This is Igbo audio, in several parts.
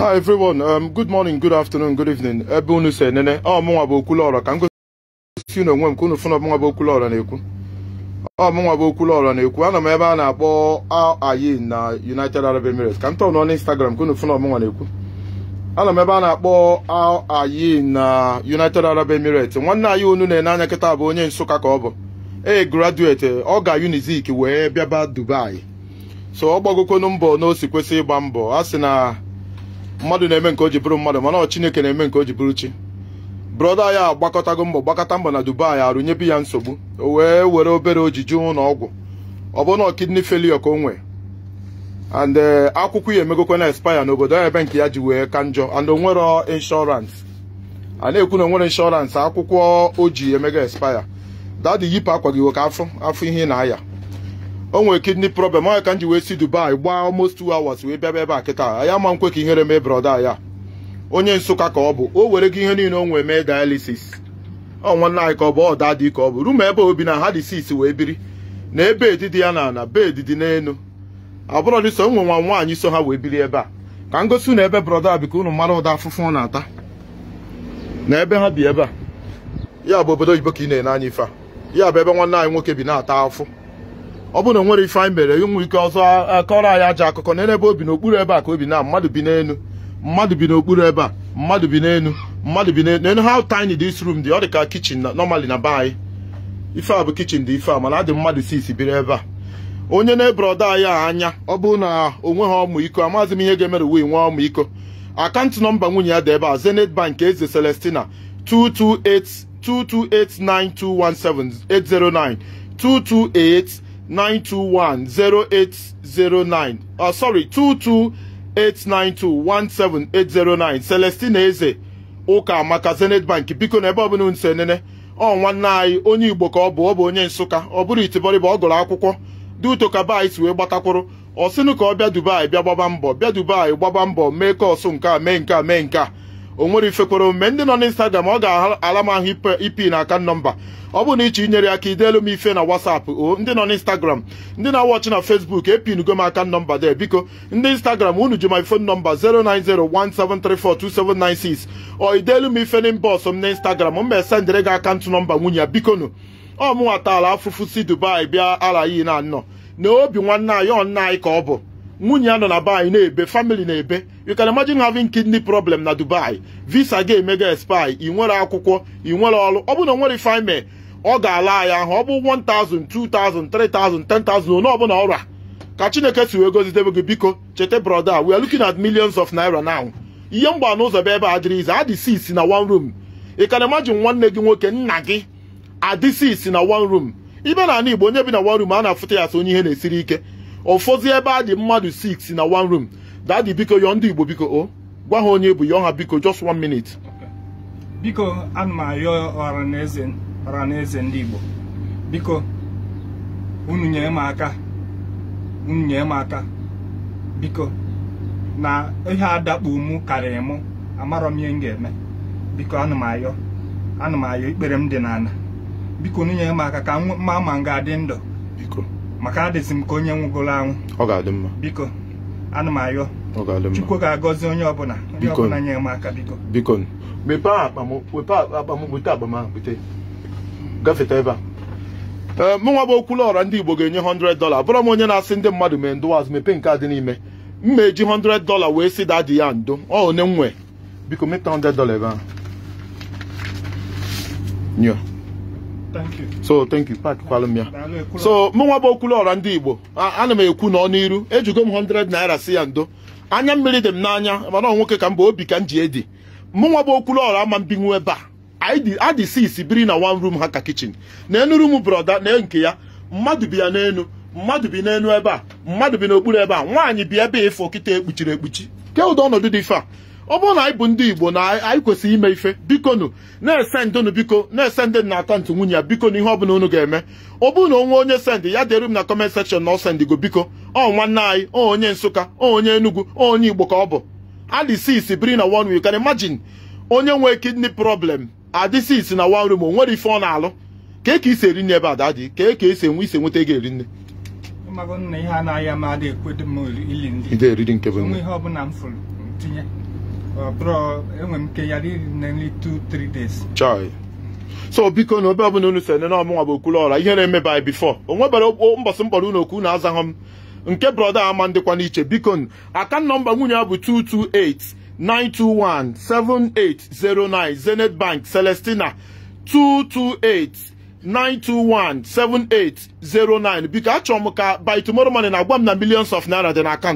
hi everyone um, good morning good afternoon good evening ebe unu si enene ọ ah, mụnwa bụ Okwuluora ka m gosi unu onwe m ka unu fụna ọmụnwa bụ Okwuluora na-ekwu ọ mụnwa bụ Okwuluora na-ekwu ah, ana m ebe a na-akpọ ayin na United Arab Emirates ka m tọọ nọ n'Instagram ka unu fụna ọmụnwa na-ekwu ana m ebe a na-akpọ ayin na United Arab Emirates nwanne anyị unu na-ene anya kịta bụ onye Nsụka ka ọ bụ e graduate ọ ga Unizik wee bịaba Dubai so ọ gbagokonu mbọ na o si kwesị ịgba mbọ a sị na mmadụ na-eme nke o ji bụrụ mmadụ mana ọ chineke na-eme nke o ji bụrụ chi brọda ya agbakọtago mbọ gbakọta mbọ na dubai arụnyebe ya nsogbu o wee were obere ojiji ụlọ ọgwụ ọ bụ na kidney failure ka o nwee and eh, akwụkwọ ya emegokwa na expire n'obodo ya ebe nke ya ji wee ka njọ and onwere insurance a na-ekwu na onwere insurance akwụkwọ o ji emego expire dadi yipụ akwa gị ka afọ afọ ihe na-aya o nwere kidney problem onye ka m ji wee si Dubai gbaa almost two hours wee bịaba ebe a kịta ya ma nkwe ka ihere mee brọda ya onye Nsụka ka ọ bụ o were gị ihe niile o nwee mee dialysis ọ nwanne anyị ka ọ bụ ọ dị ka ọ bụ rumu ebe obi na ha dị sis wee biri na ebe edidi ya na ana bed dị n'elu abụrọ dị so nwe nwa nwaanyị so ha wee biri ebe a ka m gosi na ebe brọda bi ka unu mara ụda afụfụ ọ na-ata na ebe ha bi ebe a ya bụ obodo oyibo ka ị na-ene anya ife a ya bụ ebe nwanne anyị nwoke bi na-ata afụ ọ bụrụ na nwere ife anyị mere ụmụ ike ọzọ akọrọ anyị aja akụkọ na ebe obi n'okpuru ebe a ka obi na mmadụ bi n'elu mmadụ bi n'okpuru ebe a mmadụ bi n'elu mmadụ bi n'elu n'elu how tiny this room dị ọ dị ka kichin normally na be anyị ife a bụ kichin dị ife a mana adị mmadụ sisi biri ebe a onye na-ebroda anyị a anya ọ bụrụ na o nweghị ọmụiko iko amaghịzi m ihe ga-emere uwe nwee ọmụ iko akaụntụ nọmba nwunye ya dị ebe a Zenith Bank Eze Celestina 228 9217 809 228 921 0809 uh, sorry 17809 Eze ụka maka Zenith Bank biko na ebe ọbụla nso nene ọ nwanne anyị onye Igbo ka ọ bụ ọ bụ onye Nsụka ọ bụrụ itibọrịba ọ gụrụ akwụkwọ duutokaba anyị si wee gbatakwụrụ ọ sịnụ ka ọ bịa Dubai bịa gbaba mbọ bịa Dubai gbaba mbọ mee kọọsụ nke a mee nke a mee nke a o nwere ifekwere omume ndị nọ n'instagram ọ ga-ala m ahụ ipi na aka nọmba ọ bụ na iche inyere ka ideelu m ife na WhatsApp o ndị nọ n'instagram ndị na-awọchị na Facebook epinugo m aka nọmba de biko ndị instagram unu ji my phone number 09017342796 ọ ideelu m ife na m n'instagram m mesendịrị gị akaụntụ nọmba nwunye ya bikonu ọ mụnwata taala afụfụ si Dubai bịa ala na anọ na obi nwanne anyị nna anyị ka ọ bụ nwunye ya nọ na be na-ebe famili na-ebe you can imagine having kidney problem na Dubai visa ga emega expire ị nwere akwụkwọ ị nwere ọrụ ọ na nwere ife ọ ga-ala ya ahụ ọ bụ 1000 2000 3000 10000 ọbụla ọrụ a ka Chineke si wee gozidebe gị biko cheta brother we are looking at millions of naira now ihe mgba n'ụzọ ebe a dịrị ize adị na one room ị can imagine nwanne gị nwoke nna gị adị six na one room ibe na ala Igbo onye bi na one room a na-afụta ya asị onye ihe na-esiri ike ụfọdụ ebe a dị mmadụ 6 na one room di biko yọọ ndị Igbo biko o oh, gwa ha onye bụ yọọ ha biko just one minute biko ana m arịọ ọhaneze ndị Igbo biko unu nyere m aka unu nyere m aka biko na ihe adakpu mụ karịrị mụ amarọ m ihe m ga-eme biko ana m ayọ ana m ayọ ikpere m dị n'ala biko unu nyere m aka ka mma ma adị ndụ biko maka adịsị m ka onye nwụgoro anwụ ọ ga-adị mma biko ana m ayọ chukwu ga-agọzi onye ọbụla ọbụla m aka biko biko mepe akpa m bute ahụ bute gafeta ebe a eh, bụ okwulu ọra ndị Igbo ga-enye 100 bụrụ m onye na-asị ndị mmadụ mee ndụwaz mepee nke adị n'ime m eji 100 wee sị dadi ya ndo ọ one biko 100 so thank you pakwalụ m ya so mụnwa bụ Okwuluọra ndị Igbo ana m ekwu n'ọnụ iru ejugo m 100 naira si ya ndo anya mmiri dị m n'anya mana ọ nwoke ka m bụ obi ka m ji edi mụnwa bụ Okwuluọra ama mbinwu ebe a adị sisi biri na one room ha ka kichin na enu m broda na nke ya mmadụ bi ya n'enu mmadụ bi n'enu ebe a mmadụ bi n'okpuru ebe a nwaanyị bi ebe a ịfụ kịta ekpuchiri ekpuchi ke ụdị ọnọdụ dị ife ọ bụrụ na anyị bụ ndị Igbo na anyị kwesịrị ime ife bikonu na-ese biko na-ese na akaụntụ nwunye ya bikonu ihe ọbụla unu ga-eme ọ bụrụ na onwe onye sendị ya dịrị m na kọment sekshọn na ọ sendigo biko ọ nwanne anyị ọ onye Nsụka ọ onye Enugwu ọ onye Igbo ka ọ bụ adịsis biri na one you can imagine onye nwee kidney problem isi na wan room o nwere ife ọ na-alụ ka ka isi eri nne ebe ada dị ka eke esi enwe isi nweta ego eri nne ihe ọbụla m fụrụ tinye Uh, bro, enwere m nke ya nearly two, three days. Chai. so biko na obe ọbụla unu so nene ọmụnwa bụ okwulu ọra ihe na-eme by before o nwebara mbọsị mkpọrọ unu okwu na azaghị m nke brọda ama ndịkwa n'iche biko akan nọmba nwunye ya bụ 228-921-7809 Zenith Bank Celestina 228-921-7809 biko achọrọ m ka by tomorrow morning na-agwa m na millions of naira dị na a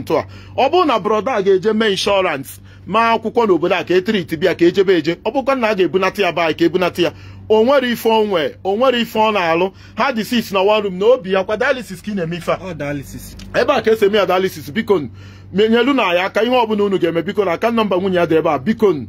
ọ bụrụ na brọda a ga-eje mee inshọrans maa akwụkwọ n'obodo a ka etiriti bịa ka ejebe eje ọ bụkwa na a ga-ebunata ya baanyị ka ebunata ya o nwere ife onwe o nwere ife ọ na-alụ ha dị sis na warum na obi ya kwa dialysis ka ị na-eme ife a ebe a ka esi eme ya bikon biko menyelu na ya aka ihe ọbụla unu ga-eme biko na aka nọmba nwunye ya dị ebe a bikon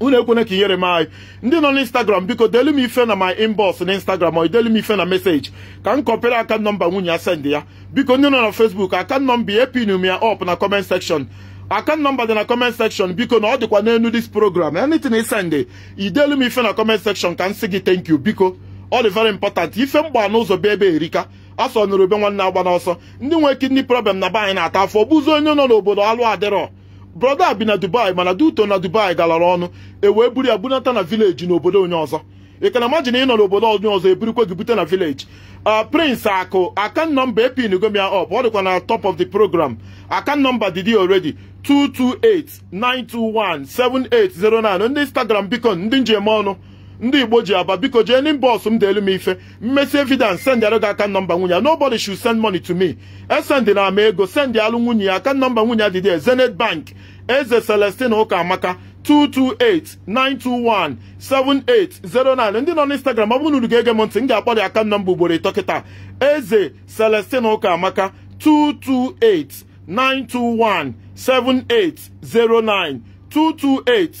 unu ekwene ka inyere m anyị ndị nọ n'instagram biko delu m ife na my inbox na instagram ọ delu m ife na meseji ka m kọpere aka nọmba nwunye ya send ya biko ndị nọ na facebook aka nọmba ya epinu ya ọp na comment section account nọmba dị na comment section biko na ọ dịkwa n'elu dis program anything isend idelu m ife na comment section ka m sị gị thank you biko ọ dị very important ife mgba ụzọ bịa ebe erika asọ nụrụ ube nwanne agba n'ọsọ ndị nwee kidney problem na be anyị na-ata afọ bụzi onye nọ n'obodo alụ adịrọ brọda bi na dubai mana duto na dubai galara ọnụ e wee buru ya bunata na vileji n'obodo onye ọzọ ị ka na ị nọ n'obodo onye ọzọ eburikwe gị bute na vileji Uh, prince akụ akan nọmba epinugo gomia up ọ dịkwa na top of the program akan nọmba dd already 228-921-7809 ndị instagram biko ndị njem ọnụ ndị igbo ji aba biko jee nin bọs m deelu m ife mmesi evidence sendịara gị aka nọmba nwunye nobody should send money to me esendị na ama ego send alụ nwunye ya aka nọmba nwunye adịdị Zenith bank eze Celestin ụka amaka 228 921 7809 ndị nọ n'Instagram ọ bụrụ na unu ga-ege m ntị m ga-akpọ dị aka nọmba ugboro ịtọ kịta eze Celestine Ụkamaka 228 921 7809 228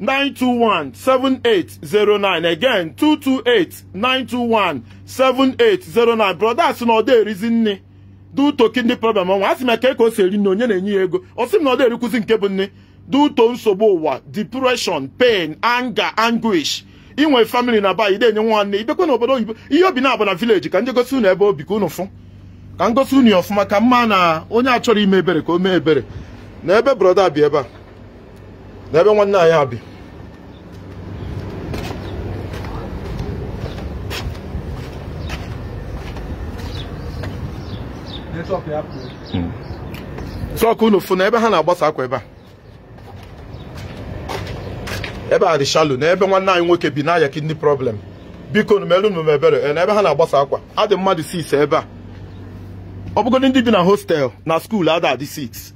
921 7809 again 228 921 7809 brothers na ọ dị erizi nne dị utoki ndị problem ọnwa a sị m ka e ka o si eri nne onye na-enye ya ego ọ sị m na ọ dị erikwuzi nke bụ nne duto nsogbu ụwa depression pain anger anguish inwe family na bayi ide enye nwanne ibekwe na obodo oyibo ihe obi na-abụ na village ka njegosi unu ebe obi ka unu fụ ka ngosi unu ọfụma ka mma na onye achọrọ ime ebere ka o mee ebere na ebe broda bi ebe a na ebe nwanne anyị bi hmm. sọkụ unu fụ na ebe ha na-agbasa akwa ebe a ebe a dị shalo na ebe nwanne anyị nwoke bi na-aya kidney problem biko nu merụnụ ebere na ebe ha na-agbasa akwa adị mmadụ sis ebe a ọ bụgodị ndị bi na hostel na skuul ada adị 6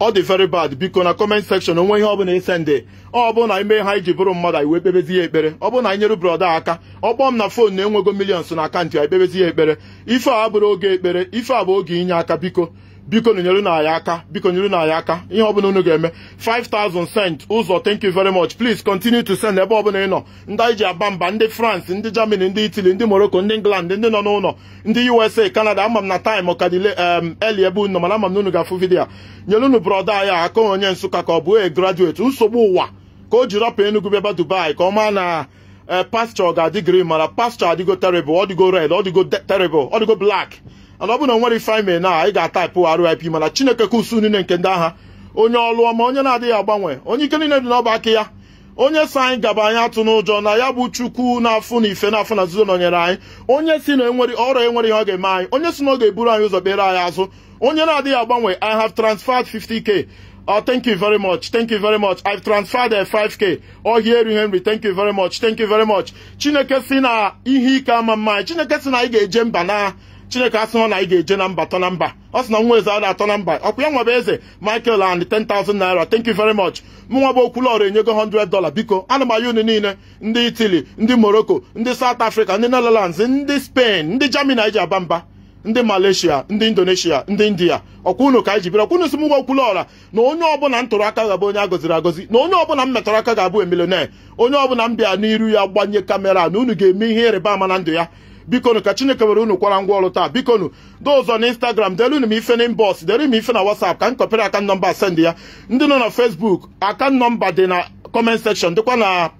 ọ dị very bad biko na comment sekshọn onwe ihe ọbụla ese nde ọ bụrụ na ime ha iji bụrụ mmadụ anyị wee kpebezi ya ekpere ọ bụrụ na anyị nyere aka ọ m na fon na enwego millions na akaụntụ anyị kpebezi ya ekpere ife a bụrụ oge ekpere ife a bụ oge inye aka biko biko nyere na anyị aka biko nyere na anyị aka ihe ọbụla unu ga-eme 5000 cent ụzọ thank you very much please continue to send ebe ọbụla ị nọ ndị anyị ji aba mba ndị France ndị Germany ndị Italy ndị Morocco ndị England ndị nọ n'ụlọ ndị USA Canada ama m na time ka dile um, eli ebe unu mana ama m na unu ga-afụ vidiyo nyere unu brọda anyị aka onye Nsụka ka ọ bụ e graduate nsogbu ụwa ka o ji rapụ Enugu bịaba Dubai ka ọ maa na eh, pasture ga-adị green mara pasture adịgo terrible ọ dịgo red ọ dịgo terrible ana ọ bụ na nwere ife anyị mere na ga-ataịpụ RIP mana Chineke ka usu niile nke ndị agha onye ọlụ ọma onye na-adịghị agbanwe onye ike niile dị n'ọba aka ya onye si anyị gaba anyị atụ n'ụjọ na ya bụ chukwu na-afụ na ife n'afọ na nzuzo nọnyere anyị onye si na enwere ọrịa enwere ihe ọ ga-eme anyị onye si na ọ ga-eburu anyị ụzọ kpere anyị azụ onye na-adịghị agbanwe i have transferred 50k Oh, thank you very much. Thank you very much. I've transferred a uh, 5k. Oh, here Henry. Thank you very much. Thank you very much. Chineke si na ihe ike ama mma. Chineke si na anyị ga-eje mba na chineke asị na anyị ga-eje na mba na mba ọ sị na nwa eze ada atọ na mba ọkwa ya nwebe eze michael and 10,000 naira thank you very much mụnwa bụ okwulọrụ enyego 100 dola biko ana m unu niile ndị italy ndị morocco ndị south africa ndị netherlands ndị spain ndị germany anyị ji aba mba ndị malaysia ndị indonesia ndị india ọkwa unu ka anyị ji bịara ọkwa unu si m nwa okwulọra na onye ọbụla m tụrụ aka ga-abụ onye a gọziri agọzi na onye ọbụla m metọrọ aka ga-abụ emilioner onye ọbụla m bịa n'iru ya gbanye kamera na unu ga-eme ihe ịrịba ama na ndụ ya bikonu ka chineke were unu kwara ngwa ọrụ taa bikonu dị na instagram delunu m ife na inbox dere m ife na whatsapp ka m kọpere aka nọmba send ya ndị nọ na facebook aka nọmba dị na comment section dịkwa na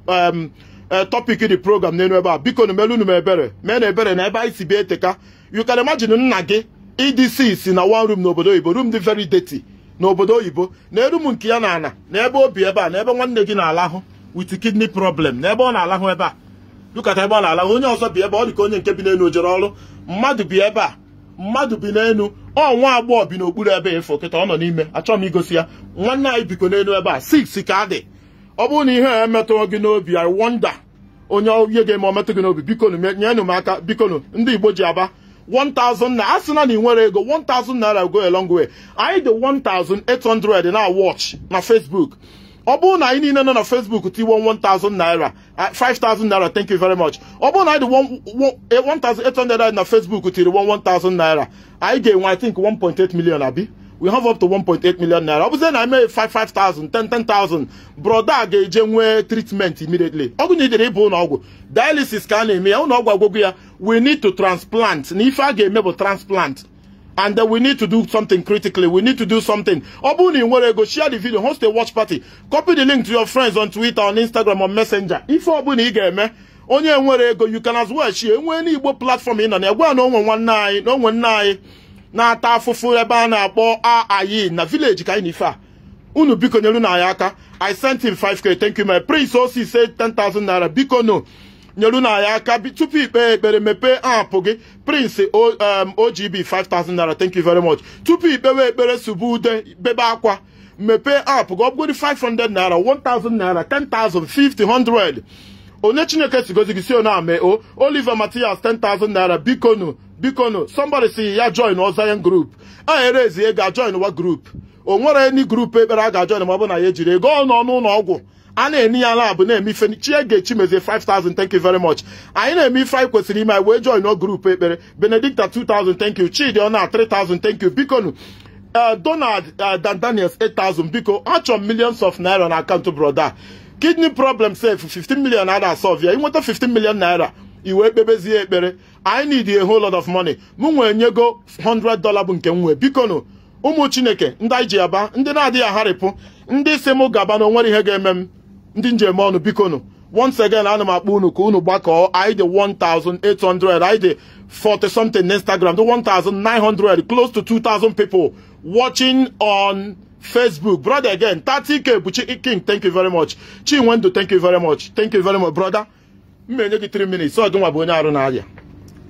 eh, topic dị program n'elu ebe a bikonu melunu m ebere mee na ebere na ebe anyị si bịa eteka you can nna gị EDC si na one room n'obodo oyibo room dị very dirty n'obodo oyibo na erum nke ya na ana na ebe obi ebe a na ebe nwanne gị na-alahụ with kidney problem na ebe ọ na-alahụ ebe a dukata ebe ọ na onye ọzọ bi ebe ọ dị ka onye nke bi n'elu jere ọrụ mmadụ bi ebe a mmadụ bi n'elu ọ nwa agbọghọ bi n'okpuru ebe ịfụ kịta ọ nọ n'ime achọghị m igosi ya nwanne anyị biko n'elu ebe a six ka dị ọ bụrụ na ihe a emetụrụ gị n'obi i wonder onye ihe ga-eme ọmetụ gị n'obi biko nyenụ m aka bikonu ndị Igbo ji aba 1000 a sị na na ị nwere ego 1000 naira go a long way anyị dị 1800 na watch na Facebook ọ bụrụ na anyị niile nọ na Facebook tiwo 1000 naira 5000 naira thank you very much ọ bụrụ na anyị dị 1800 eh, na Facebook tiri 1000 naira anyị ga-enwe I think 1.8 million abi we have up to 1.8 million naira ọ bụzie na eme 5,000 10,000 broda ga-eje nwee treatment immediately ọgwụ na idere ịbụ ụlọ ọgwụ dialysis ka a na-eme ya ụlọ ọgwụ agwụgwụ ya we need to transplant na ife a ga-eme bụ transplant and then we need to do something critically. We need to do something. Obuni ego share the video, host a watch party. Copy the link to your friends on Twitter, on Instagram, on Messenger. If Obuni eme onye ego you can as well share. Enwe ni Igbo platform in and gwa no one one nine, no one Na ata afufu ebe a na-akpọ aayi na village ka anyị Unu biko nyelu na anyị aka. I sent him 5k. Thank you my prince. Osi say 10,000 naira. Biko no. nyeru na ya aka tupu ikpe ekpere mepee apụ gị prince ogb 5000 naira thank you very much tupu ikpewe ekpere subu ude bebe akwa mepee aapụ gị ọ 500 naira 1000 naira 10000 50 onye chineke sigozi gị si ona ame o oliver matias 10000 naira bikonu bikonu somebody si ya join ozayan group a erezie ga join wa group o nwere ekpere a ga-ajoin ma ọ bụ na ya ejiri ego ọ nọ n'ụlọ ọgwụ a na-eni ya ala na-eme ife chie ga-echi mezie 5000 thank you very much anyị na-eme ife anyị kwesịrị ime anyị wee join o grupu ekpere benedicta 2000 thank you chidiona 3000 thank you bikonu eh, donald eh, daniels 8000 biko achọ m millions of naira na akaụntụ broda kidney problem sef 15 million a na-asọvia inweta 15 million naira iwe kpebezie ekpere i need a whole lot of money m nwee nyego 100 dollar bụ nke m nwee bikonu ụmụ chineke ndị anyị ji aba ndị na-adịghị agharịpụ ndị si m gaba na nwere ihe ga-eme m ndị njem ọnụ biko nụ once again ana m akpọ unu ka unu gbakọọ anyị dị 1800 anyị 40 something Instagram dị 1900 close to 2000 people watching on Facebook brother again 30k Buchi King thank you very much Chinwendu thank you very much thank you very much brother m gị 3 minutes ọ nwa bụ onye arụ na-arịa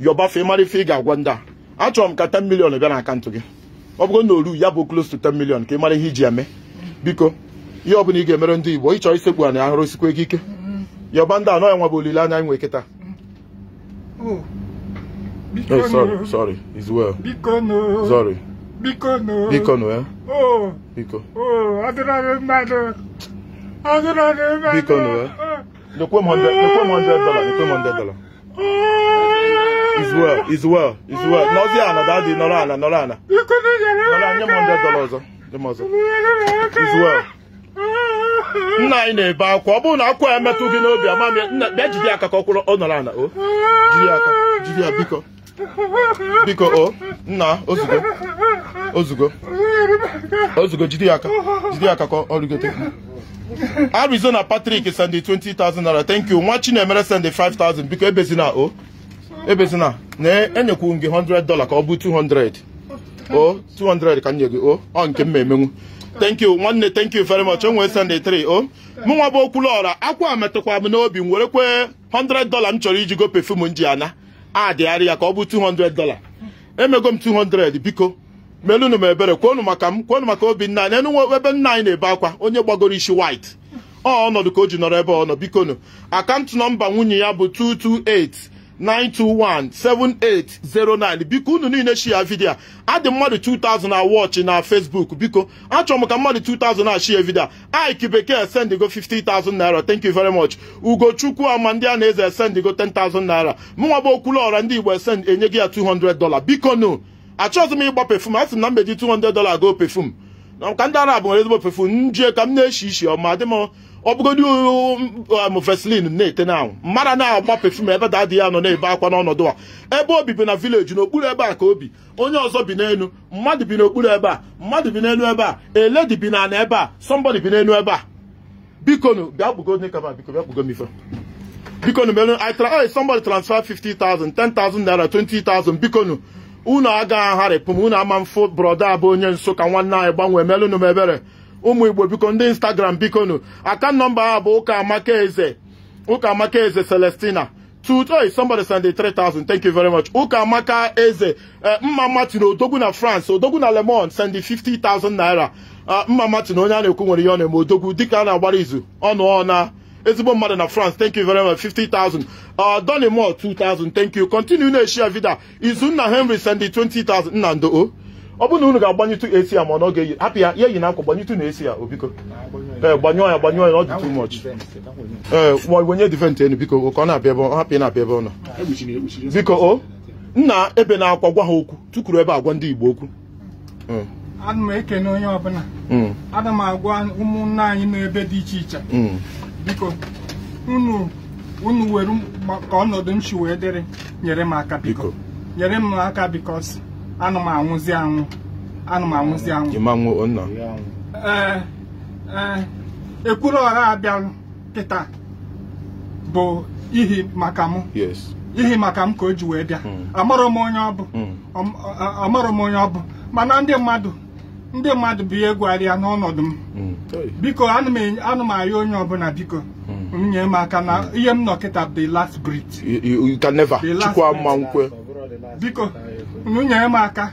yọbafe mara ife ị ga-agwa ndị a achọrọ m ka 10 million bịa na akaụntụ gị ọ bụrụ na oru ya bụ close to 10 million ka ị mara ihe iji eme biko ihe ọbụla ị ga-emere ndị Igbo ịchọ isekpu ana ahụrụ sikwa gị ike yọba ndị anọ ya nwa bụ olileanya anyị nwe kịta eh? dollar well. nna anyị na-ebe akwa ọ bụrụ na akwa ya gị n'obi amami bịa aka ka ọ kwụrụ ọ nọrọ o aka ya biko biko o nna ozugo jide aka aka ka ọ rigote Arizona nwa Chinemere 5,000 o ebezina na enyekwu gị ka ọ bụ 200 o nye nke m emenwu thank you nwanne thank you very much enwee Sunday 3 o mụnwa bụ Okwuluora akwa metụkwa m n'obi m were kwee 100 dollar m chọrọ iji go perfume m ji ana adịgharị ya ka ọ bụ 200 dollar emego m 200 biko melụnụ m ebere kwonu maka m kwonu maka Obinna anyị enunwe ebe nna anyị na-ebe akwa onye gbagoro isi white ọ ọnọdụ ka o ji nọrọ ebe ọ nọ bikonu akaụntụ nọmba nwunye ya bụ 228 9217809 biko unu niile shia vidio a adị mmadụ 2000 na wọchị na Facebook biko achọrọ m ka mmadụ 2000 na shia vidio a Ike Bekee sendigo 50000 naira thank you very much Ugochukwu ama ndị a na-eze esendigo 10000 naira mụnwa bụ Okwuluọra ndị Igbo esend enye gị ya 200 dola biko nu achọghịzị m ịgba pefum a sị na mbeji 200 dola goo pefum ka ndị Arab nwere ezigbo pefum njie ka m na-eshi ishi ọma adị m ọ bụgodị um, amofeslin na-ete na mmadụ na-agba pefum ebe da adịghị nọ na-ebe akwa n'ọnọdụ a ebe obi na vileji n'okpuru ebe a ka obi onye ọzọ bi n'elu mmadụ bi n'okpuru ebe a mmadụ bi n'elu ebe a eledi bi n'ala ebe a somebody bi n'elu ebe a bikonu bịa nkaba biko bịa bikonu transfer 50,000 10,000 naira 20,000 bikonu unu agaghị m unu ama mfụ brọda abụ onye Nsụka nwanne anyị gbanwee melụnụ m ụmụ igbo biko ndị instagram bikonu aka nọmba ha bụ ụka amaka eze ụka amaka eze celestina today oh, somebody send 3000 thank you very much ụka amaka eze eh, mma martin odogwu na france odogwu na lemon send 50000 naira ah, mma martin onye a na-ekwu nwere ihe ọ na-eme odogwu dịka a na-agbara izu ọnụ na ezigbo mmadụ na france thank you very much 50000 donimo 2000 thank you continue na-eshi vida izunna henry send 20000 nna ndo ọ bụrụ na unu ga-agbanyetụ esi ya ma ọ ga-eyi hapụ ya ya eyi na akwa gbanyetụ na esi oh, ya obiko eh, ee ya gbanyụọ ya ọ dị too much ee ma wenye divent enu biko ka ọ na-abịa ebe hapụ ya na-abịa ebe ọ nọ biko o nna ebe na-akwa gwa ha okwu tukuru ebe agwa ndị Igbo okwu eh. ana m ekene onye ọbụla hmm. ana m agwa ụmụnna anyị n'ebe dị iche iche hmm. biko unu unu were ka ọnọdụ m si wee dịrị nyere m aka biko nyere m aka biko anụ m anwụzi anwụ anụ m anwụzi anwụ ee ee ekwuru ọra abịalụ kịta bụ ihi maka mụ ihi maka m ka o ji wee bịa hmm. amarọ m onye ọ bụ hmm. amarọ m onye ọ bụ mana ndị mmadụ ndị mmadụ bụ ihe ya n'ọnọdụ m hmm. biko anụ m ayọ onye ọbụla biko nye m aka na ihe m nọ kịta bụ the last breath biko unu nyere m aka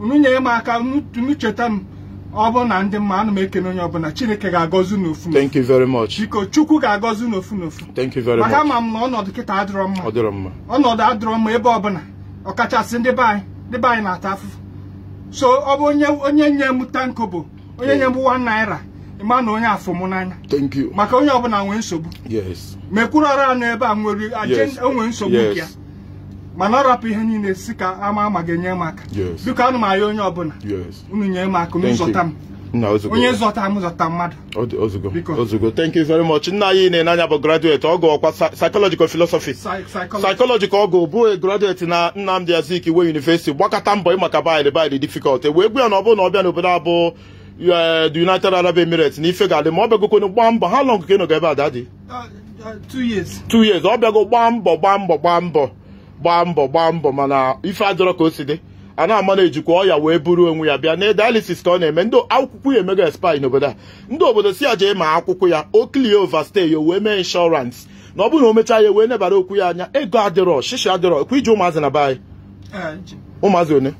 unu nyere m aka unu cheta m ọ na ndị mma ana m ekene onye ọbụla chineke ga-agọzi n'ofu biko chukwu ga-agọzi n'ofu n'ofu thank maka ma m na ọnọdụ kịta adịrọ mma mma ọnọdụ adịrọ mma ebe ọbụla ọkachasị ndị be ndị be anyị na-ata afụfụ so ọ bụ onye onye nye m tanko bụ onye nye m one naira ịma na onye afọ m n'anya maka onye ọbụla nwee nsogbu mekwuru ọrụ anụ ebe a nwere onwe nsogbu ya mana ọ rapụ ihe niile si ka ama ama ga-enye m aka biko anụ m arịa onye ọbụla unu nye m aka zọta m onye zọta m zọta mmadụ ozugbo thank you very much nna anyị na-enanya bụ graduate ọgụ ọkwa psychological philosophy psychological ọgụ bụ e graduate na Nnamdi Azikiwe University gbakọta mbọ maka bid bid difficult e wee gbu ya na ọ bụrụ na ọ bịa n'obodo abụ e, the United Arab Emirates na ife ga-adị ma ọ kwenu gbaa mbọ ha lọngụ ka ị nọga ebe a dadi uh, uh, two years ọ bịago gbaa mbọ gbaa mbọ gbaa mbọ gbaa mbọ gbaa mbọ mana ife adọrọ ka o si dị a na-ama na ejikwa ọya wee buru onwe ya bịa na dialysis ka ọ na-eme ndị akwụkwọ ya emega espai n'obodo a ndị obodo si ya jee ma akwụkwọ ya o ova overstay ya wee mee inshọrans na ọ bụrụ na o mechaa ya e wee nebara okwu ya anya ego adịrọ shishi adịrọ kwa iji ụmụazị na be anyị ụmụazị one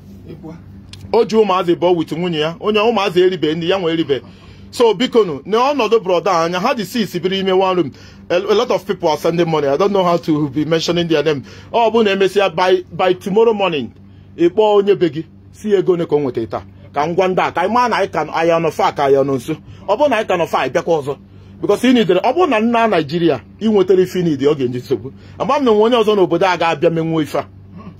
o ji ụmụazị bụọ wit nwunye ya onye ụmụazị eribe ndị ya nwe eribe so bikonu n'ọnọdụ broda anya ha dị six biri ime one room a lot of people are sending money i don't know how to be mentioning their name ọ bụ na emesịa by by tomorrow morning ị kpọọ onye be gị si ego one ka ọ nweta taa ka m gwa ndị a ka anyị maa na anyị ka aya nọ fa ka aya nọ nso ọ bụ na anyị ka nọ fa anyị bịakwa ọzọ because nidere ọ bụrụ na nna naijiria ị nwetara ife nidi ọ ga eji nsogbu agba m na onye ọzọ n'obodo a ga-abịa menwuo ife a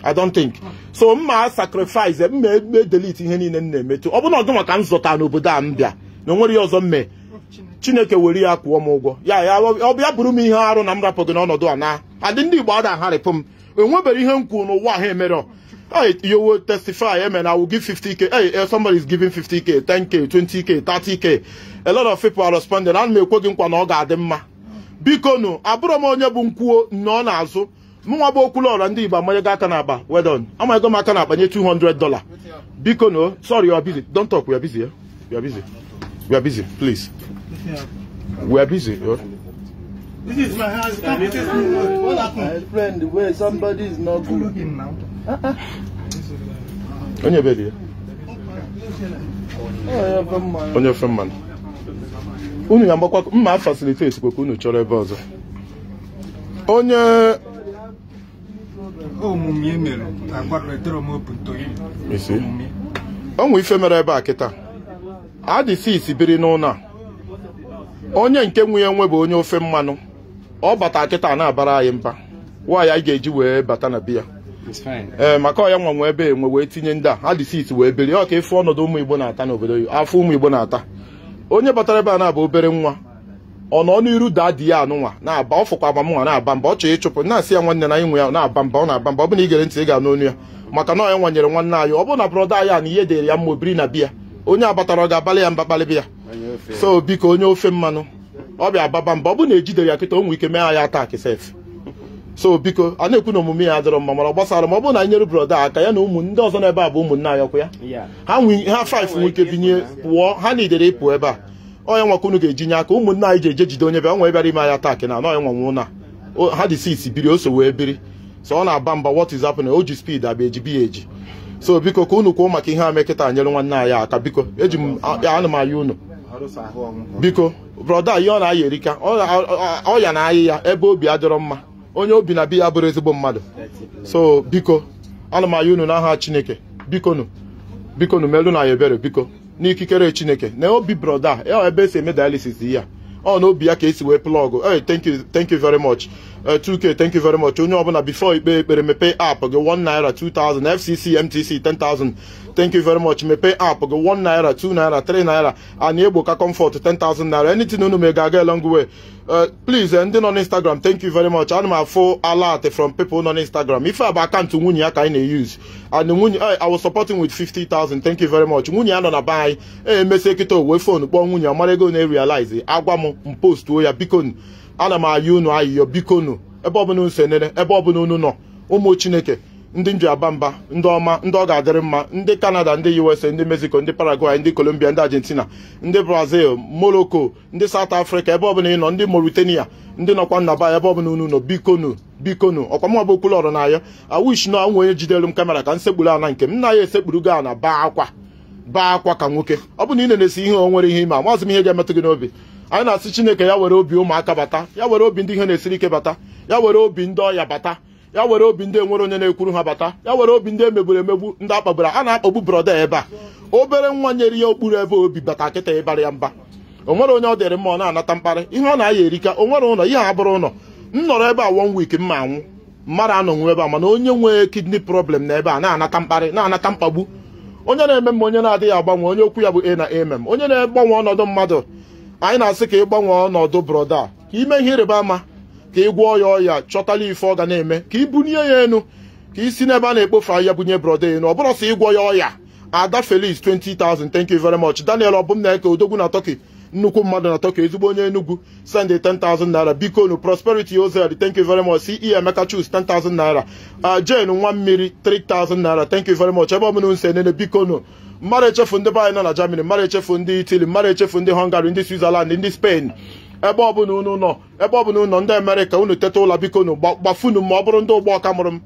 I don't think so mma sacrifice mma ebe delete ihe niile m na emetu ọ bụrụ na ọdụnwa ka m n'obodo a m bịa na o nwere ọzọ mme chineke were ya kwụọ m ụgwọ ya ya bụrụ m ihe arụ na m rapụ gị n'ọnọdụ a na adị ndị igbo ada agharịpụ m enwebere ihe m kwuru n'ụwa ha emere yowo testify na I will give 50k hey uh, somebody is giving 50k 10k 20k 30k a lot of people are responding ana m ekwe nkwa na ọ ga-adị mma biko nụ abụrụ m onye bụ nkwuo nọ n'azụ mụnwa bụ okwulọra ndị igbo amanyego aka n'akpa wedon amanyego m aka nye 200 biko nụ sorry busy don't talk We are busy, please. We are busy. Yeah. This is my house. this what happened? My friend, where somebody is not good. Looking now. On your bed here. Oh, on your friend mma facilitate kwa unu chọrọ ebe ọzọ. Onye omume oh, mere open to you. ife mere ebe a kita. adịsis biri n'ụlọ a onye nke nwe ya nwe bụ onye ofe mmanụ ọ bata kịta na-abara anyị mba nwaanyị anyị ga-eji wee bata na biya ee maka ọya nwa nwe ebe enwe wee tinye ndị a adịsis wee biri ọ ka efu ọnọdụ ụmụ igbo na-ata n'obodo afọ ụmụ igbo na-ata onye batara ebe a na-abụ obere nwa ọ nọ n'iru daa di ya anụnwa na-aba ọ fụkwa na-aba mba ọ chọrọ ịchụpụ na-asị ya nwanne na inwe ya na-aba mba ọ na-aba mba ọ bụ na gere ntị ị ga-anụ onu ya maka na ọ nwanyere nwanne anyị ọ bụ na brọda anyị a na ihe dịrị ya mma obiri na biya onye abatara ọ ga-abalị ya mba kpalịbịa so biko onye ofe mmanụ ọ bịa ababa mba ọ bụ na ejidere ya kịta ụmụ ike mee ya atak sef so biko a na-ekwu na omume ya adịrọ mma mana gbasara ma ọ bụrụ na nyere broda aka ya na ụmụ ndị ọzọ n'ebe a bụ ụmụnna anyọkwa ya ha faif nwee ike binye pụọ ha na idere ịpụ ebe a onye nwakwa unu ga-ejinye eji aka ụmụnna anyị ji eje jide onye bịa onwe bịara ime aya tak na anọghị nwanwụ na ha dị sisi biri oso wee biri so ọ na-aba mba what is o ji spid abịa eji biya eji so biko ka unu kwuo maka ihe a mekịta nyere nwanne anyị aka biko eji m ana m unu biko brọda ihe ọ na-aya erika ọya na ayị ya ebe obi adịrọ mma onye obi na bi ya bụrụ ezigbo mmadụ so biko unu m aha unu n'aha chineke bikonu bikonu melu na ya ebere biko n'ikikere chineke na obi brọda ebe esi eme dialysis ya ọ na obi ya ka esi wee plọgụ thank you very much 2k uh, thank you very much onye ọbụla before ikpe ekpere mepee app gị 1 naira 2000 fcc mtc 10000 thank you very much mepee app gị 1 naira 2 naira 3 naira ana egbo ka comfort 10000 naira anything unu ma ga-aga long way uh, please eh, ndị nọ n'instagram thank you very much ana m afụ alert from people nọ n'instagram ife a bụ akaụntụ nwunye ya ka anyị na-eyuz and nwunye eh, i was supporting with 50000 thank you very much nwunye ya nọ na be anyị eh, emesi ekịta owuwe fon kpọọ nwunye amara ego na-erialize agwa m m mpostuo ya biko ana m ayị unu ayịyọ biko nu ebe ọbụla unu senere ebe ọbụla unu nọ ụmụ chineke ndị nji aba mba ndị ọma ndị ọ ga-adịrị mma ndị kanada ndị usa ndị mexico ndị paraguay ndị colombia ndị argentina ndị brazil morocco ndị south africa ebe ọbụla ị nọ ndị mauritania ndị nọkwa nnaba ebe ọbụla unu nọ bikonu bikonu ọkwa mụ ọbụ okwulu ọrụ n'ayọ awish na onwe onye jidere m kamera ka m sekpuru ana nke m na ya esekpuru go ana baa akwa baa akwa ka nwoke ọ bụ na ị na-esi ihe nwere ihe ime a mazụ m ihe ga-emetụ gị n'obi anyị na-asị chineke ya were obi ụmụaka bata ya were obi ndị ihe na-esiri ike bata ya were obi ndị ọya bata ya were obi ndị enwere onye na-ekwuru ha bata ya were obi ndị emegburu emegbu ndị akpagburu a na-akpagbu broda ebe a obere nwa nyere ya okpuru ebe obi bata kịta ịbara ya mba o nwere onye ọ dịrị mma ọ na-anata mkparị ihe ọ na-aya erika o nwere ụlọ ihe abụrụ ụlọ m nọrọ ebe a one week mma anwụ mmadụ anọnwụ ebe a mana onye nwee kidney problem na ebe a na-anata mkparị na-anata mkpagbu onye na-eme m onye na-adịghị agbanwe onye okwu ya bụ a na m onye na-egbanwe ọnọdụ mmadụ anyị na-asị ka ị gbanwee ọnọdụ brọda a ka ime ihe ịrịba ama ka ị gwọọ ya ọya chọtala ife ọ ga na-eme ka ị bunie ya enu ka ị si n'ebe a na-ekpofe ahịa bunye brọda enu ọ bụrụ sị ịgwọ ya ọya ada felis 20,000 thank you very much daniel ọbụmnaeke odogwu na tọki nnukwu mmadụ na tọki ezigbo onye enugwu send 10,000 naira biko nu prosperity oz thank you very much ce emeka chus 10,000 naira uh, jane nwa mmiri 3,000 naira thank you very much ebe ọbụla nse nene biko nu mmadụ echefu ndị be nọ na Germany mmadụ echefu ndị itali mmadụ echefu ndị Hungary ndị Switzerland ndị Spain ebe ọbụla unu nọ ebe ọbụla unu nọ ndị Amerịka unu teta ụlọ biko gbafunu ma ọ bụrụ ndị ụgbọ ọka mụrụ m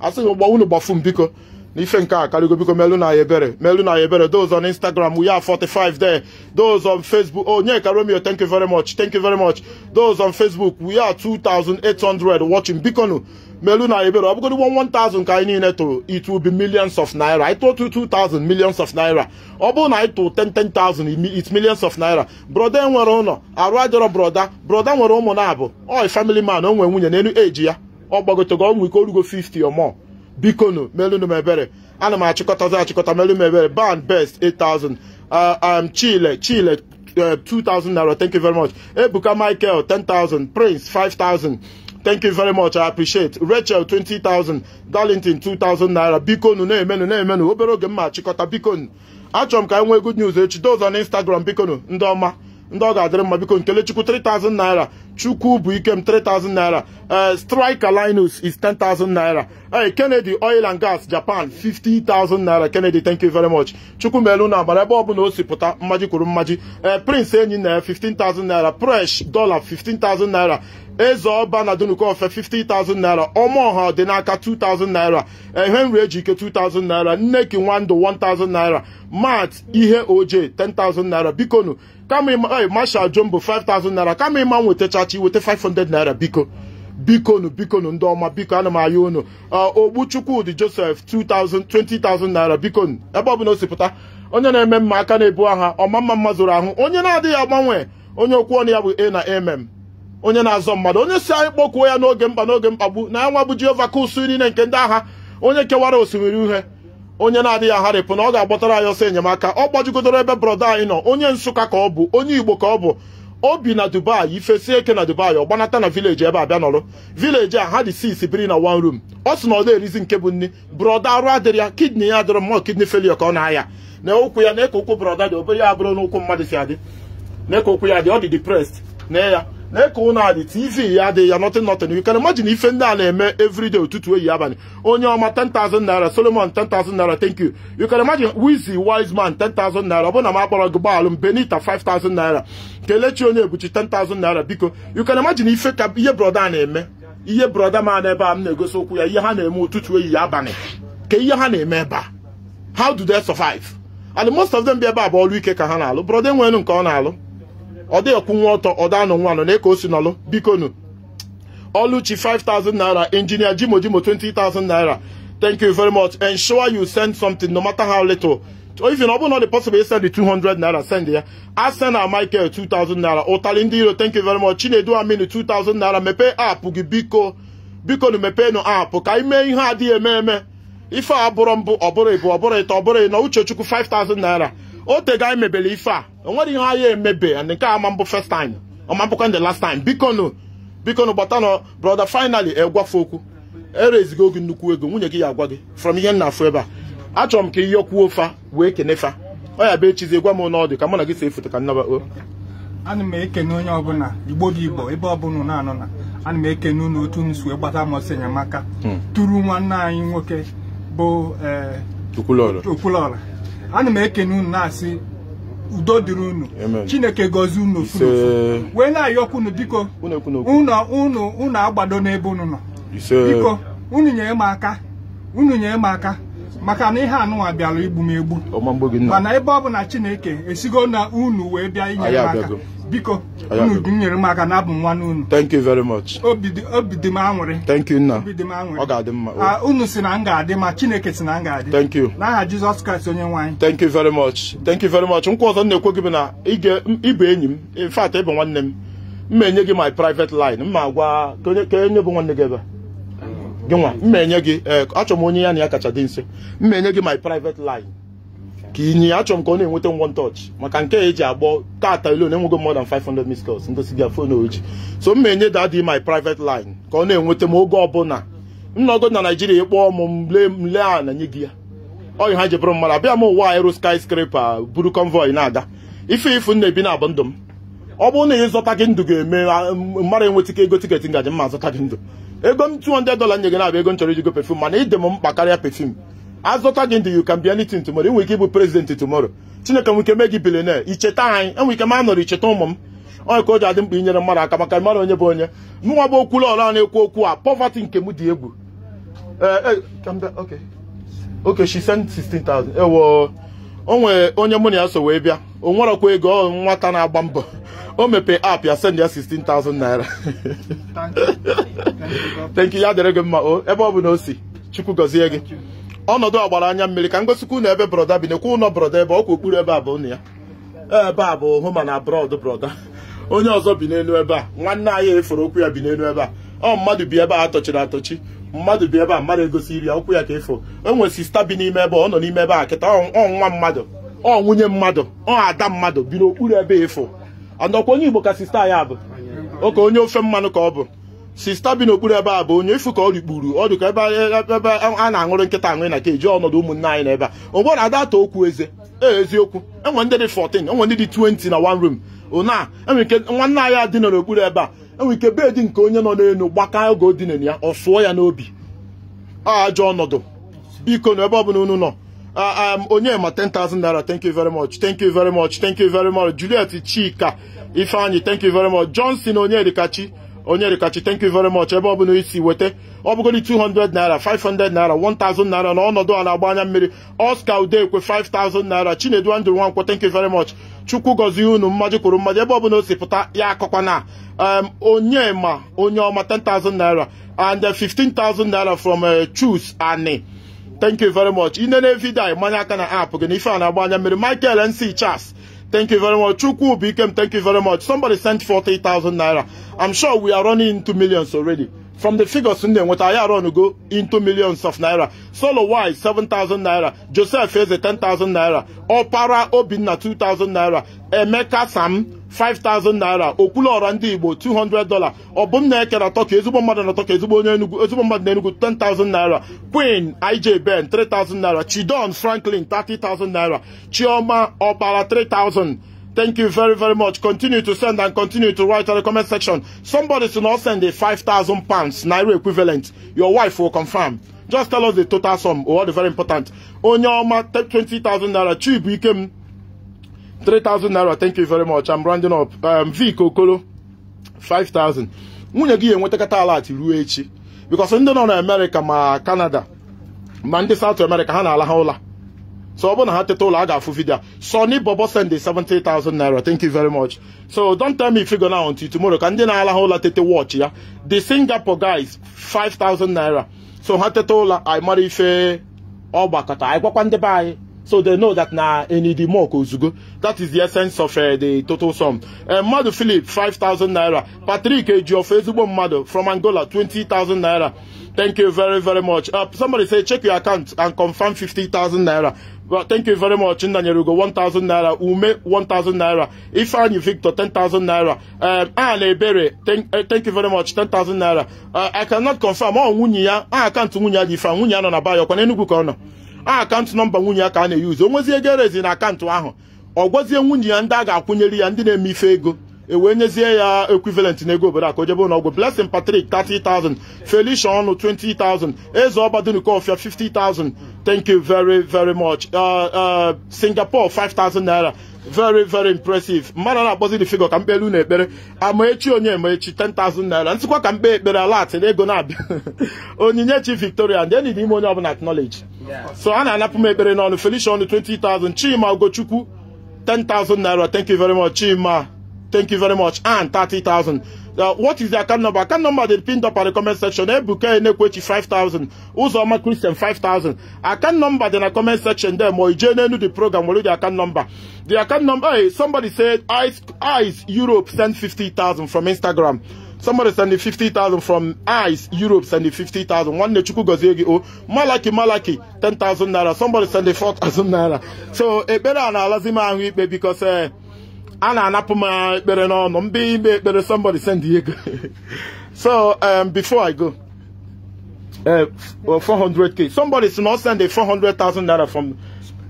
asị m ụgbọ unu gbafu m biko na ife nka a karịgo biko melu na ebere melu na ebere those on Instagram we 45 there those on Facebook oh Onyeka Romeo thank you very much thank you very much those on Facebook we 2800 watching biko nu melu na ebere ọ bụgodị 1000 ka anyị niile tụrụ it will millions of naira anyị tụọ 2000 millions of naira ọ bụrụ na anyị tụrụ 10,000 it millions of naira broda nwere ụlọ arụ ajọrọ broda broda nwere ụmụ na-abụ oi family man o nwere nwunye n'elu eji ya ọ gbagotego ọnwụ ike orugo 50 or more bikonu melunu m ebere ana m achịkọtazi achịkọta melu m ban best 8000 uh, um chile chile 2000 uh, naira thank you very much ebuka michael 10000 prince 5000 thank you very much i appreciate rachel 20000 darlington thousand naira biko nu na-emenu na-emenu obere oge mma chịkọta biko nu achọrọ m ka anyị nwee good news echi dozo na instagram biko nu ndị ọma ndị ọ ga-adịrị mma biko nkelechukwu 3000 naira chukwu bụ ikem 3000 naira eh, striker linus is 10000 naira ee eh, kennedy oil and gas japan 50000 naira kennedy thank you very much chukwu melu na agbara ebe bụla o si pụta mmaji kwuru mmaji ee eh, prince enyi na 15000 naira fresh dollar 15000 naira eze ọba na dunukofe 50,000 naira ọmaọha ọdịnaka 2,000 naira ehenri ejike 2,000 naira nneki nwandụ 1,000 naira mat ihe oje 10,000 naira bikonu kama masha jumbo 5,000 naira kama ịma nwetachachi weta 500 naira biko bikonu bikonu ndị ọma biko ana m aya unu ogbuchukwudi josef 2000 20,000 naira bikonu ebe ọbụla o sipụta onye na-eme mma aka na-ebu aha ọma mma mma zụrụ ahụ onye na-adịghị agbanwe onye okwu ọnụ ya bụ a na mm onye na-azọ mmadụ onye si anyị kpọkuo ya n'oge mkpa n'oge mkpagbu na nwa bụ Jehova kusu niile nke ndị agha onye kewara osimiri uhe onye na-adịghị agharịpụ na ọ ga-agbọtara anyị ọsọ enyemaka ọ gbajugidoro ebe brọda anyị nọ onye Nsụka ka ọ bụ onye Igbo ka ọ bụ o bi na Dubai ifesie eke na Dubai ọ gbanata na vileji ebe abịa nọrọ vileji a ha dị six biri na one room ọ sị na ọ na-erizi nke bụ nni brọda arụ adịrị ya kidney ya adịrọ mma kidney failure ka ọ na-aya na ụkwụ ya na-eke ụkwụ brọda dị obere ya abụrụ n'ụkwụ mmadụ si adị na-eke ụkwụ ya dị ọ dị na ya lee ka ụnụ adị tv ya adịghị ya nothing nothing you can imagine ife ndị a na-eme everyday ụtụtụ eyi abalị onye ọma 10,000 naira solomon 10,000 naira thank you you can imagine wizi wise man 10,000 naira na m akpọrọ gị gbaalụ m benita 5,000 naira kelechi onye ebuchi 10,000 naira biko you can imagine ife ka ihe brọda a na-eme ihe brọda ma na ebe a m na-egosi okwu ya ihe ha na-eme ụtụtụ eyi abalị ka ihe ha na-eme ebe how do they survive and most of them bi ebe a bụ ọrụ ike ka ha na-alụ brọda enwere nke ọ na-alụ ọ dịghị kwụnwa ọtọ ọda anọ nwa anọ na ka o si nọlụ bikonu Oluchi 5,000 naira engineer Jimojimo 20,000 naira thank you very much ensure you send something no matter how little oh, if you know not the possible send the 200 naira send ya I send a Michael 2,000 naira Otali iro thank you very much Chinedu Aminu 2,000 naira mepee app gị biko biko nu mepe nu app ka anyị mee ihe adịghị eme eme ife a bụrụ mbụ ọ bụrụ ịbụ ọ bụrụ ịtọ ọ bụrụ ịnọ Uchechukwu 5,000 naira otega anyị mebere ife a onwere ihe ahịa emebe and nke a ama mbụ first time ọma mbụkwa the last time bikonu bikonu gbata nọ brother finally egwafe okwu erezigo oge nnukwu ego nwunye gị ya agwa gị from ihe nna afụ ebe a achọrọ m ka ihe kwuo fa wee kenefa ọ ya bụ echizi gwa m n'ọdụ ka mụ na gị si efoto ka nnaba o ana m ekene onye ọbụla igbo dị igbo ebe ọbụla na anọ na ana m ekene unu otu m si gbata amasị enyemaka hmm. tụrụ nwanne anyị nwoke bụ okwulọla eh, ana m ekene unu na-asị udo dịrị unu chineke gọzie unu furu wee na-ayọkwa unu biko unu unu agbado n'ebe unu nọ biko unu nyere m aka unu nyere m maka na ihe anụnwa bịara igbu m egbu mana ebe ọ bụ na chineke esigo na unu wee bịa inye m aka biko nyere m aka na abụ nwa n'unu thank you very much obi dị m anwụrị thank you nna obi dị ọ ga-adị mma ah, unu si na m ga-adị ma chineke si na m ga-adị thank you na aha jizọs kraịst onye nwe thank you very much thank you very much nkwa ọzọ m na-ekwe gị bụ na ịbụ enyi m in fact ịbụ nwanne m mma enye gị my private line mma agwa ka onye bụ nwanne gị ebe gị nwa mma enye gị eh, achọrọ m onye ya na ya kacha dị nso mma enye gị my private line ka ịnyịnya achọrọ m ka ọ na-enweta one touch maka nke a eji agbọ tata ilo na-enwego more than 500 missed calls ndosi bịa fon so m na-enye dadi my private line ka ọ na-enweta m oge ọbụla nọgo na naijiria ịkpọọ m mle a na nye gị ya oyi ha jebụrụ mmadụ abịa m ụwa sky skyscraper buru convoy na-aga ife ifu na ebi na abụ ndụ m ọ bụrụ na ị zụta gị ndụ ga-eme mmadụ enweta ka ego tiketi ngaji mma azụta gị ndụ ego m 200 dola nye gị na-abịa ego m chọrọ iji go pefum mana ịdị m mkpa karịa pefum azụta gị ndị you can be anything tomorrow enwere ike ịbụ president tomorrow chineke nwere ike mee gị bilionaire icheta anyị enwere ike ma nọrọ icheta ụmụ m onye ka o ji adị mkpa inyere mmadụ aka maka mmadụ onye bụ onye nwa bụ okwula ọla na-ekwu okwu a poverty nke m dị egwu eh, eh, okay she sent 16000 ewo onwe onye mụ na ya so wee bịa o nwerọkwa ego nwata na-agba mbọ o mepe app ya send ya 16000 naira thank you ya dịrị gị mma ebe ọ bụ na o si chukwu gọzie gị ọnọdụ ọgbara anya mmiri ka m gosikwu na ebe broda bi nekwa ụlọ broda ebe ọkwa okpuru ebe a bụ ụnụ ya ebe a bụ hụma na brọd broda onye ọzọ bi n'elu ebe a nwanne anyị efere okwu ya bi n'elu ebe a ọ mmadụ bi ebe a atọchiri atọchi mmadụ bi ebe a mmadụ egosi iri ya okwu ya ka efo nwere sista bi n'ime ebe ọ nọ n'ime ebe a kịta ọ nwa mmadụ ọ nwunye mmadụ ọ ada mmadụ bi n'okpuru ebe efo nọkwa onye igbo ka sista ya bụ oke onye ofe mmanụ ka ọ bụ sista bi n'okpuru ebe a bụ onye ifu ka ọ rikpuru ọ dịka ebe ebe a na-aṅụrụ nkịta aṅụrị na keji ọnọdụ ụmụnne anyị n'ebe a ogbo na adata okwu eze ee eziokwu enwe ndị dị 14 enwe ndị dị 20 na one room ụna enwe ike nwanne anyị adị nọ n'okpuru ebe a enwe ike beedi nke onye nọ n'elu gbaka oge odinere ya ọ sụọ ya n'obi ajọ ọnọdụ biko na ebe ọbụla unu nọ onye ma 10,000 naira thank you very much thank you very much thank you very much Juliet Chika ifeanyị thank you very much Johnson Onyedikachi onye rikachi thank you very much ebe ọ bụla isi weta ọ bụgoli 200 naira 500 naira 1000 naira na ọnọdụ ala agba anya mmiri Oscar Udekwe 5000 naira Chinedu Andrew Nwankwo thank you very much chukwu gozie unu mmaji kwuru mmaji ebe ọbụla osi si pụta ya na um, onye ma onye ọma 10,000 naira and 15,000 uh, naira from uh, Chus Ani thank you very much ine na evidio mmanya aka na app gị na ife a na-agba anya mmiri Michael NC Charles Thank you very much. Chukwu Ubikem, thank you very much. Somebody sent 40,000 naira. I'm sure we are running into millions already. From the figures in there, what I run go into millions of naira. Solo Wise, 7,000 naira. Joseph Eze, 10,000 naira. Opara Obinna, 2,000 naira. Emeka Sam, 5000 naira okpulu ọra ndị igbo 200 dola ọ bụ m na-ekere atọ ka ezigbo mmadụ na-atọ ka ezigbo onye enugwu ezigbo mmadụ na enugwu 10000 naira queen ij ben 3000 naira chidon franklin 30000 naira chioma ọbara 3000 Thank you very, very much. Continue to send and continue to write on the comment section. Somebody should not send a 5,000 pounds, Naira equivalent. Your wife will confirm. Just tell us the total sum or the very important. Onyoma, 20,000 Naira. Chibu Ikem, 3000 naira thank you very much I'm rounding up um, Vic Okolo 5000 nwunye gị ga ala ati ruo echi because ndị nọ na America ma Canada ma ndị South America ha na-ala ha ụla so ọ bụrụ na ha teta ụlọ a ga-afụ vidio Sony Bobo send 70,000 naira thank you very much so don't tell me go now until tomorrow ka ndị na-ala ha ụla tete watch ya the Singapore guys 5,000 naira so ha teta ụla anyị mara ife ọgbakọta anyị gwakwa ndị be anyị so they know that na enidi mok ozugbo that is the essence of uh, the total sum uh, eh, mmadụ philip 5000 naira patrick ejiof ezigbo mmadu from angola 20000 naira thank you very very much uh, somebody say check your account and confirm 50000 naira well, thank you very much nnanyere ugo 1000 naira ume 1000 naira ifeanyi victor 10000 naira um, ann ebere eh, thank, you very much 10000 naira uh, i cannot confirm ọ nwunye ya aha akaụntụ nwunye ya dị ife nwunye ya nọ na bayokwa n'enugwu ka ọ nọ a akaụntụ nọmba nwunye ya ka a na-eyuzu o nwezie ego erezi na akaụntụ ahụ ọ gwazie nwunye ya ndị a ga-akwụnyere ya ndị na-eme ife ego ewee nyezie ya equivalent na ego obodo aka o jebe ụlọọgwụ Blessing Patrick 30,000 Felicia ọnụ 20,000 eze ọbadunukaofia 50,000 thank you very very much uh, uh, Singapore 5,000 naira very very impressive mmadụ na-akpọzi the figure ka mkpelu na ekpere amaechi onye ma 10,000 naira ntịkwa ka mkpe ekpere alat na ego na-abịa onyinye chi Victoria ndị enyi n'ime onye ọbụla acknowledge so a na-anapụ m ekpere n'ọnụ Felicia ọnụ 20,000 Chima Ogochukwu 10,000 naira thank you very much Chima Thank you very much. And 30,000. Uh, what is the account number? Account number they pinned up at the comment section. Ebuka Enekwechi 5,000. Uzoma Christian 5,000. Account number in the comment section there. Moijene the program. What the account number? The account number. Hey, somebody said Ice, Ice Europe sent 50,000 from Instagram. Somebody send sending 50,000 from ICE Europe send sending 50,000. One Nechuku Gozegi O. Oh, Malaki Malaki 10,000 naira. Somebody send sending 4,000 naira. So, a eh, better analysis because. Uh, a na-anapụ m ekpere n'ọnụ mbe ime ekpere somebody send ego so um, before I go uh, 400k somebody si na ọ send a 400,000 naira from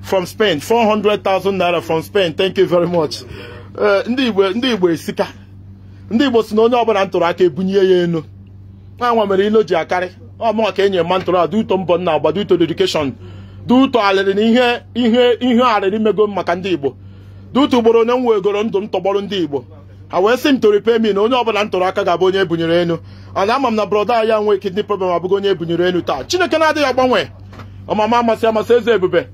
from Spain 400,000 naira from Spain thank you very much uh, ndị Igbo ndị Igbo esika ndị Igbo si na onye ọbụla ntụrụ aka ebunye ya enu nwa mere ilo ji akarị ọmụọ ka enye mma ntụrụ a uto mbọ nna agba duto dedikeshọn duto alịrị na ihe ihe ihe arịrị mego maka ndị Igbo dutu ugboro onye m wegoro ndụ m tọgbọrọ ndị igbo ha wee sị m to na onye ọbụla m aka ga-abụ onye ebunyere enu ana ama m na brọda ya nwee kidney problem abụghị onye ebunyere enu taa chineke na-adịghị agbanwe ọmama amasị amasị eze ebube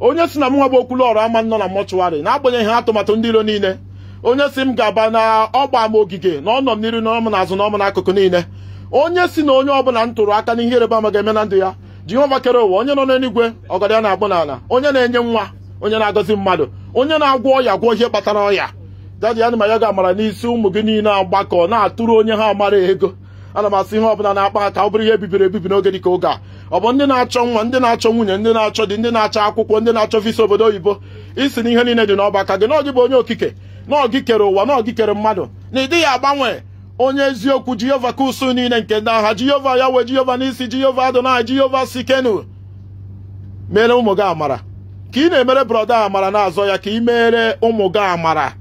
onye si na m nwa okwulu ọrụ ama nọ na mọchụwarị na-agbanyeghị atụmatụ ndị iro niile onye si m ga-aba na ọgba m ogige na ọnọ m n'iru na na azụ na ọm n'akụkụ niile onye si na onye ọbụla m tụrụ aka n'ihe ịrịba ama ga-eme na ndụ ya jehova kere ụwa onye nọ n'eluigwe ọgọdọ ya na-agbụ n'ala onye na-enye nwa onye na-agọzi mmadụ onye na-agwọ ọya gwọ ihe kpatara ọya dadi ana m ya ga-amara n'isi ụmụ gị niile agbakọ na-atụrụ onye ha amara ego ana m asị ihe ọbụla na-akpa aka ọ bụrụ ihe bibiri ebibi n'oge dịka oge a ọ bụ ndị na-achọ nwa ndị na-achọ nwunye ndị na-achọ dị ndị na-achọ akwụkwọ ndị na-achọ visa obodo oyibo isi na ihe niile dị n'ọba gị na bụ onye okike na gị kere ụwa na ọgị kere mmadụ na ịdịghị agbanwe onye eziokwu jehova kusu niile nke ndị agha jehova ya wee jehova n'isi jehova adonai jehova sikenu mere ụmụ gị amara ka ị na-emere brọda amara na-azọ ya ka ị meere ụmụ gị amara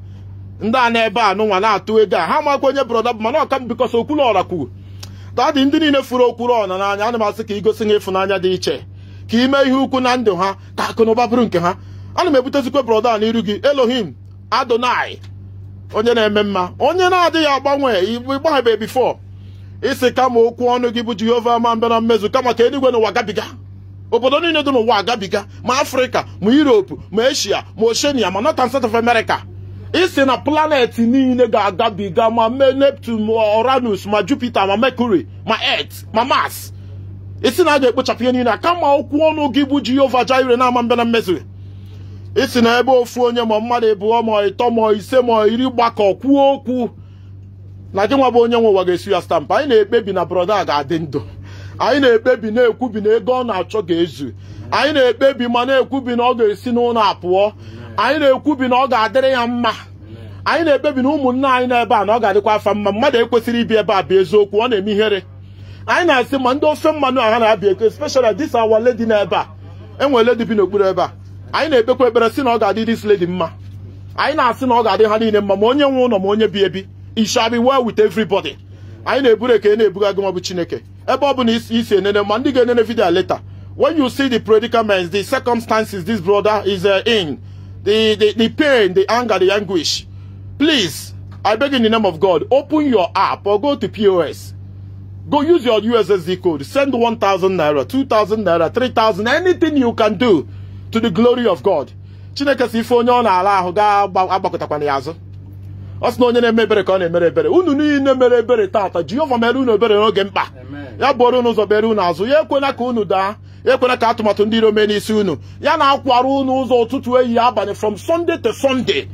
ndị a na-ebe a nụnwa na-atụ ego a ha makwa onye brọda bụ mana ọka m bikọs okwuluọra kwuru tadị ndị niile furu okwuluọra n'anya ana m asị ka igosi gosi ha ịfụnanya dị iche ka ị mee ihe ukwu na ndụ ha ka akụ na ụba bụrụ nke ha ana m ebutezikwa brọda a n'iru gị Elohim Adonai onye na-eme mma onye na-adịghị agbanwe ịgbaghebe bifo isi kama okwu ọnụ gị bụ Jehova ma mbịa na mmezu kama ka eluigwe n'ụwa gabiga obodo niile dị n'ụwa agabiga ma afrịka ma europe ma eshia ma oshenia ma north and south of america isi na planet niile ga-agabiga ma mee neptune ma oranus ma jupiter ma mercury ma earth ma mars isi na a ga-ekpochapụ ihe niile kama okwu ọnụ gị bụ jehova jire na-ama mbịa na mmezu isi na ebe ofu onye ma mmadụ ịbụọ ma ịtọ ma ise ma iri gbakọ kwuo okwu na gị nwa bụ onye nwe ụwa ga-esi ya anyị na-ekpebi na brọda a ga-adị ndụ anyị na-ekpebi na-ekwubi na ego ọ na-achọ ga-ezu anyị na-ekpebi ma na-ekwubi na ọ ga-esi n'ụlọ apụọ anyị na-ekwubi na ọ ga-adịrị ya mma anyị na-ekpebi na ụmụnne anyị n'ebe a na ọ ga-adịkwa afa mma mmadụ ekwesịrị ibi ebe a bụ eziokwu ọ na-eme ihere anyị na-asị ma ndị ofe mmanụ aha na-abịa eko especially dis our lady n'ebe a enwere lady bi n'okpuru ebe a anyị na-ekpekwa ekpere sị na ọ ga-adị dis lady mma anyị na-asị na ọ ga-adị ha niile mma ma onye nwe ụlọ ma onye bi ebi it shall wit well anyị na-eburu eke na-ebuga gị ọ bụ Chineke later when you see the predicaments the circumstances this brother is uh, in the, the the pain the anger the anguish please i beg in the name of god open your app or go to pos go use your ussd code send 1000 naira 2000 naira 3000 anything you can do to the glory of god chineke si na na-ala ga ọ sị na onye na-eme ebere ka ọ na-emere ebere unu niile mere ebere taata Jehova mere unu ebere n'oge mkpa ya bụrụ unu ụzọ bere unu azụ ya ekwela ka unu daa ya ekwela ka atụmatụ ndị iro mee n'isi unu ya na-akwara unu ụzọ ụtụtụ ehi abalị from Sunday to Sunday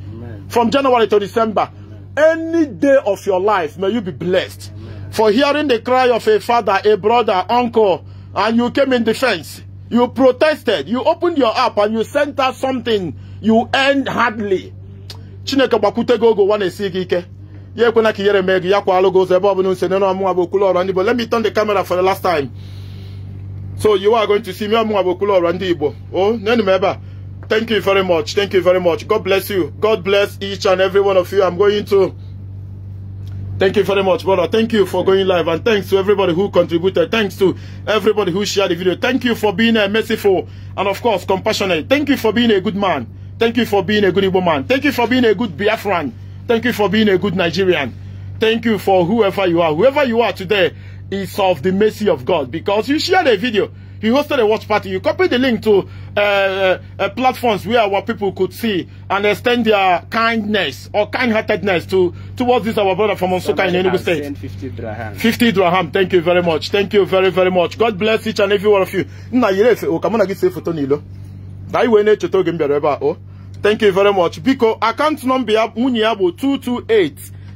from January to December any day of your life may you be blessed for hearing the cry of a father a brother uncle and you came in defense you protested you opened your app and you sent out something you earned hardly chineke gbakwute gị oge ụwa na-esi gị ike ya ekwena ka ihere mee gị ya kwalụ gị ụzọ ebe ọbụla nse nene ọmụnwa bụ okwulu ọrọ ndị Igbo let me turn the camera for the last time so you are going to see me ọmụnwa bụ okwulu ọrọ ndị Igbo o nenu m ebe a thank you very much thank you very much god bless you god bless each and every one of you i'm going to Thank you very much, brother. Thank you for going live. And thanks to everybody who contributed. Thanks to everybody who shared the video. Thank you for being uh, merciful and, of course, compassionate. Thank you for being a good man. Thank you for being a good Igbo man. Thank you for being a good Biafran. Thank you for being a good Nigerian. Thank you for whoever you are. Whoever you are today is of the mercy of God because you shared a video. You hosted a watch party. You copied the link to uh, uh, uh platforms where our people could see and extend their kindness or kind-heartedness to towards this our brother from Onsuka in Enugu State. 50 dirham. 50 dirham. Thank you very much. Thank you very, very much. God bless each and every one of you. o n'ilo. thank you very much biko account number ya ya bụ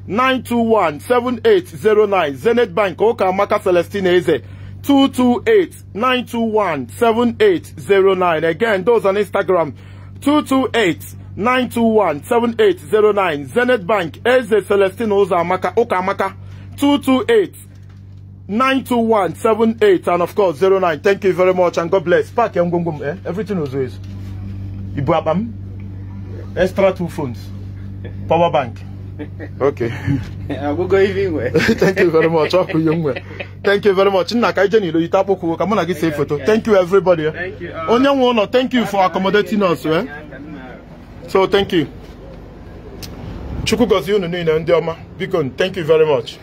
228-921-7809 Zenith Bank ụka amaka Celestine Eze 228-921-7809 again those on Instagram 228-921-7809 Zenith Bank Eze Celestine ụzọ ụka amaka 228 92178 and of course 09. Thank you very much and God bless. pak ngwongwo m eh everything was always. Ibu abam. extra two phones, power bank. Okay. I will go even Thank you very much. Thank you very much. Nna kaije ni loyi tapoku ka muna gi save photo. Thank you everybody. Eh. Thank you. Uh, Onye thank you for accommodating us, eh? So thank you. Chukwu gozie unu niile ndị thank you very much.